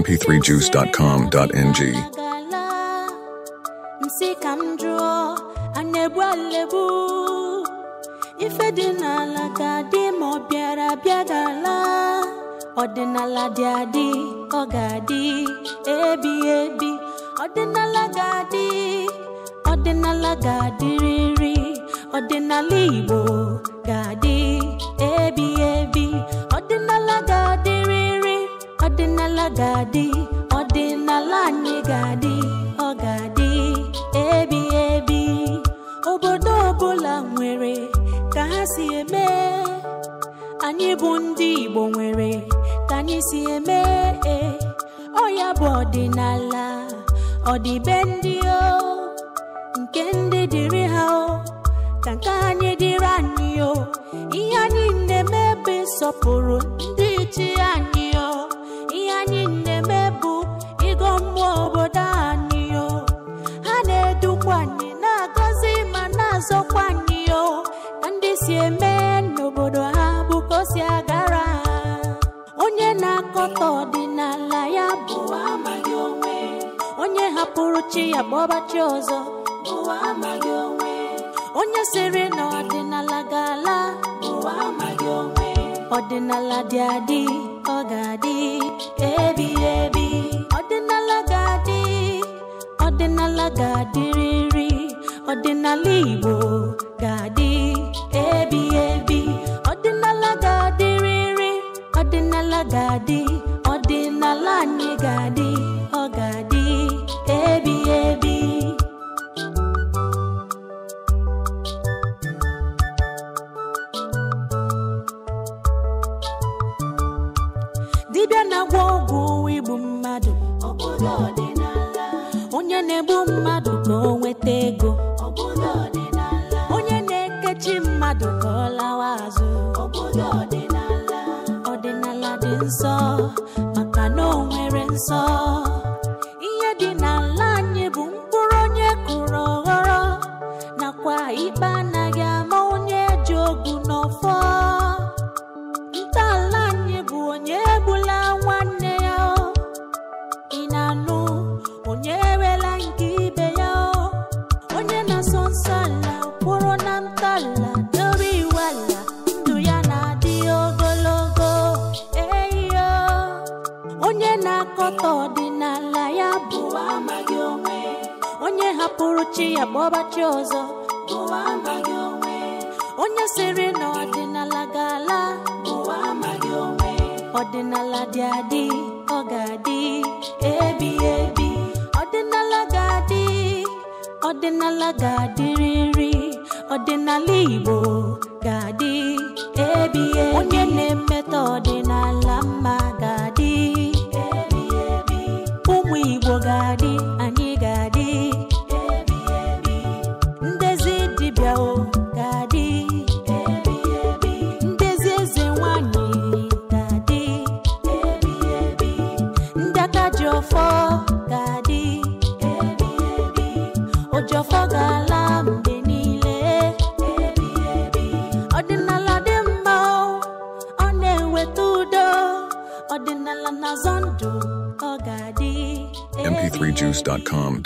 mp3juice.com.ng ọdịnala dị adị ọ ga-adị ebi ebi ọdịnala ga-adị ọdịnala ga-adịrịrị ọdịnala Igbo ọdịnala ga-adị ọdịnala anyị ga-adị ọ ga-adị ebi ebi obodo ọbụla nwere ka ha si eme anyị bụ ndị Igbo nwere ka anyị si eme ọ bụ ọdịnala ọdịbe ndị o nke ndị dịrị ha o ka nke anyị dịrị anyị o ihe anyị na-eme ọtọ ọdịnala ya bụ onye hapụrụ chi ya bụ ọbachi ọzọ onye sịrị na ọdịnala ga-ala ọdịnala dị adị ọ ga-adị Ebi, ebi ọdịnala ga-adị ọdịnala ga-adịrịrị ọdịnala Igbo ga-adị Ebi, ebi ọdịnala ga-adịrịrị ọdịnala ga-adị dibịa na-agwọ ọgwụ igbu mmadụ onye na-egbu mmadụ ka o nweta ego onye na-ekechi mmadụ ka ọ lawa azụ ọdịnala dị nsọ maka na o nwere nsọ na-akọta ọdịnala ya bụ onye hapụrụ chi ya ọbachi ọzọ onye sịrị na ọdịnala ga-ala ọdịnala dị adị ọ ga-adị ebi ebi ọdịnala ga-adị ọdịnala ga riri. ọdịnala Igbo ga-adị ebi ebi onye na-emetọ ọdịnala mma ga-adị ebi ebi ụmụ Igbo ga-adị anyị ga-adị ebi ebi ndezi dibịa o ga-adị ebi ebi ndezi eze nwanyị ga-adị ebi ebi ndị aka ji ọfọ m 3 juicecomng